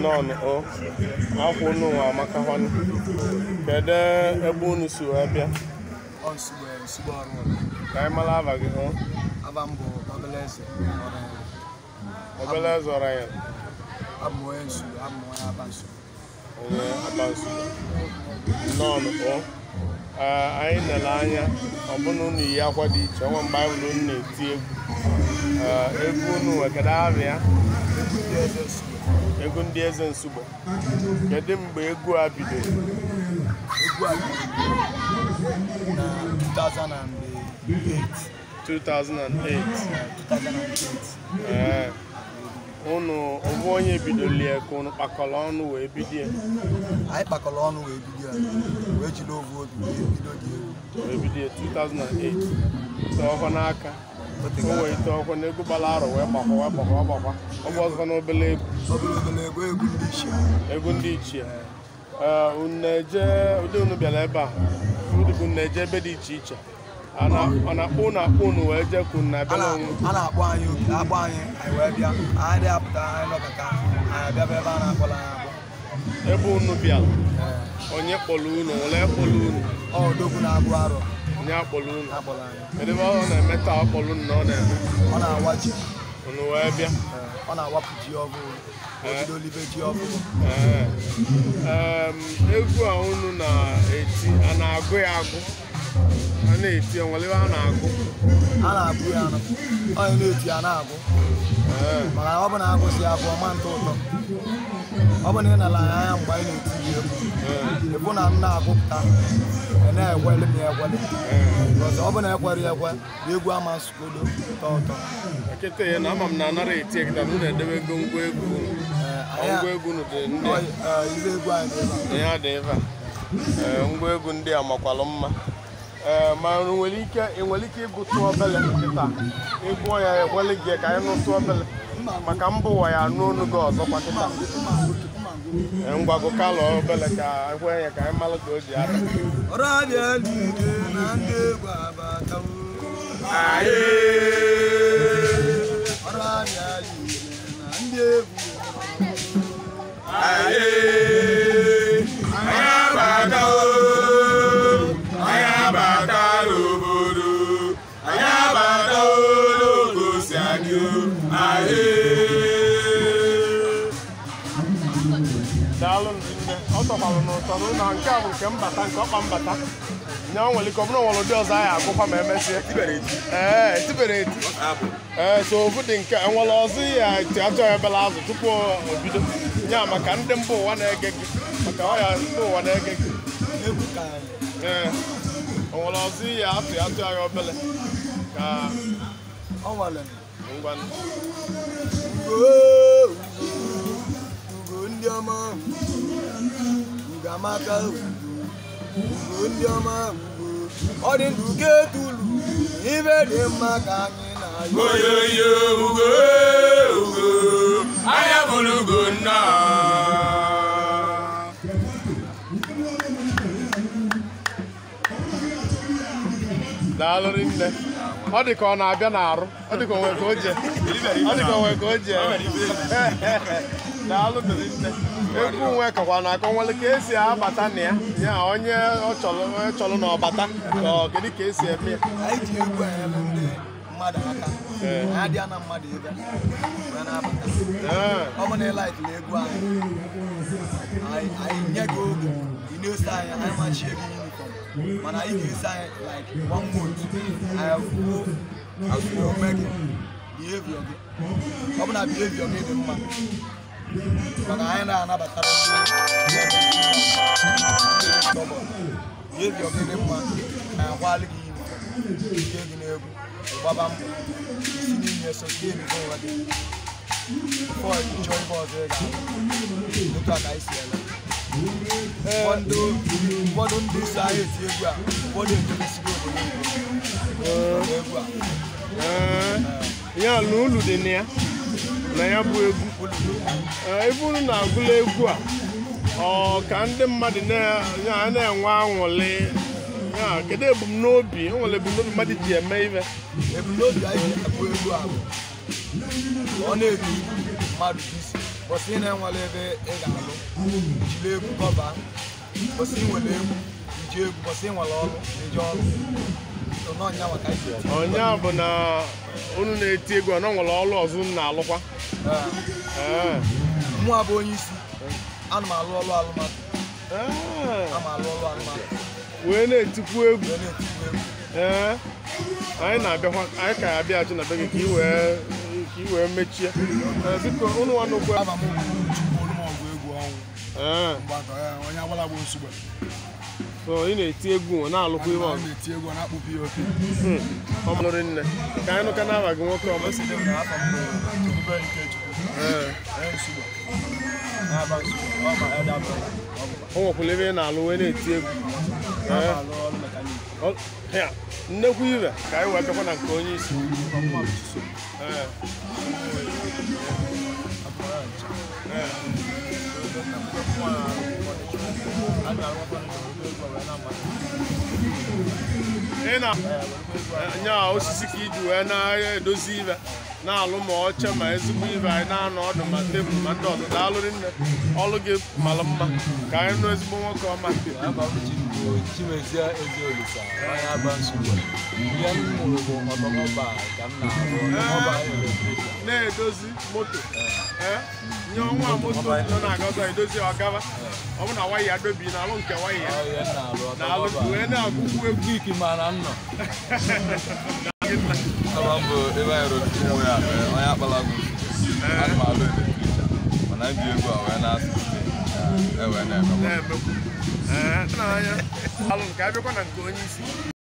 nnọọ o akwụ unu nwa amaka họn kedu ebe unu si wee bịa e, ka anyị mara aba gị hụ obele eze ọra ya onye abansu nnọọ o anyị nele anya ọbụna unu yi akwa dị iche ọnwa mgbe anyị egwu egwu unu wekada egwu ndị eze nsugbe kedu mgbe egwu a bidoro egwu a bidoro na 2008 2008 ee unu ọbụ onye bidoro ya ka unu kpakọrọ ọnụ wee bidie ya anyị kpakọrọ ọnụ wee bidie ya wee jiri ovu obi wee bido dị egwu wee bido 2008 tọọ n'aka o wee ite na egwu gbara arọ wee gbakwa wee na ndị ụdị bịara ebe a ụdị eje ebe dị iche iche ọ na akpụ unu akpụ unu wee jee ka unu abịa a na anyị anyị anyị wee bịa anyị dị apụta anyị anyị ebe a na-akpọla ebe unu bịa onye kpọrọ unu ole kpọrọ unu na arụ onye akpọrọ unu kedụ ebe ọ na-eme taa unu na ọ na-eme ọ na-awa ji unu wee bịa ọ na-awapụ ji olive ji ọgụgụ. egwu a unu na-eti a na-agụ ya agụ a na-eti ya ebe a na-agụ a na-agụ ya onye na-eti ya na-agụ Mana ọ bụ na agụsị ya bụ ọma ntụ ụtọ ọ bụ na ị nara ya anya mgbe anyị na-eti ya egwu ịbụ na m na-agụpụta na-ekweli m ekweli ọ bụ na ekwere ekwe na egwu ama nsogbu ụtọ ụtọ nkịta ya na ama m na anara eti ekita na na-edebe ego ngwa egwu ngwa egwu ndị e, egwu anyị dị ebe a ngwa egwu ndị a makwalụ mma ma nwere ike enwere ike ịgụtụ obele nkịta ịgụọ ya egwele gị ka anyị nụtụ obele maka mbụ ụwa ya anụ gị ọzọ kịta ngwago kalọ obele ka ekwe ya ka anyị malụ ka o ji aka ọ tọkwalụ n'ụtọrụ na nke a bụ nke mbata nke ọkpa mbata nya nwere ike ọbụrụ nwere ụdị ọzọ anyị agụkwa ma emesie ee tibere eti ee so ofu dị nke enwere ọzọ ihe eti ya ebele azụ tupu o bido ya maka ndị mba ụwa na-ege gị maka ọya mba ụwa na-ege gị ee enwere ọzọ ya atụ ya atụ ya obele ka ngwanụ amaka ugbo ndị ọma ugbo ọ dị ndụ ka etulu ibe dị mma ka anyị na-ayọ oyoyo ugo ugo anya bụrụ ugo nna daalụrị nne ọ dị ka ọ na-abịa n'arụ ọ dị ka onwe ka o je ọ dị ka onwe ka o je daalụ dịrị nne egwu nwe kakwa na-akọnwele ka esi abata na ya ya onye ọ chọrọ na ọbata kedu ka esi eme ya mmadụ aka adịa na mmadụ ebe ya na-abata ọ bụ na ịlaịtị na egwu anyị anyị nye gị oge ị na-ese anyị anyị machie gị yunifọm mana anyị ga-ese anyị like one month anyị kwuo azụrụ ome gị biheviọ gị ọ bụ na biheviọ gị dị mma maka anyị na-anabatara ndị mma na ike gị n'egwu gbaba mbọ n'ihe so ọzọ ị ga otu ka anyị si ele ụfọdụ ndị anyị egwu a ụfọdụ ejidesigo obodo egwu a ihe ya na ya bụ egwu e, eburu na-agụla egwu a ọ ka ndị mmadụ na-enwe aṅụrị kedu ebumnobi nwere ebumnobi mmadụ ji eme ime ebumnobi anyị bụ egwu a ọ na-ebi mmadụ isi kwụsị na-enwere ebe ị ga-alụ jiri egwu kọba kwụsị nwere egwu iji egwu kwụsị nwere ọrụ eji ọrụ a bụ na unu na-eti egwu na nwere ọrụ ọzọ na-alụkwa mụa bụ onye isi ana m alụ ọrụ alụmatụ wee na-etikwu egwu anyị na-abịakwa anyị ka ya na be gị ka ị wee ka mechie biko ụnụ nwanne ukwu ị na-eti egwu na-alụkwa iwe ọgụ ọmụrụ nne ka anyị nụka n'aba gị nwoke ọma o ebe ị na-alụ wee na-eti egwu nnekwu ibe ka anyị wee bịakwa na nke onye isi ị na-anya osisi ka iji wee na-edozi ibe na-alụ ma oche ma ezigbo ibe anyị na-anọ ọdụ ma tebụl ma ndị ọdụ daalụrị nne ọlụ gị mara mma ka anyị nụ ezigbo nwoke ọma ihe m mụrụ bụ ka m na-arụ na-edozi moto eh? nye ọnwa moto nọ na-aga ọzọ edozi ọgaba ọ bụ na waya ya dobi na alụ nke waya ya na alụ wee na-agụgwu egwu iki mara nnọ ya eh. na-asụ e, eh, Alụ nke abịakwa na nke onye isi.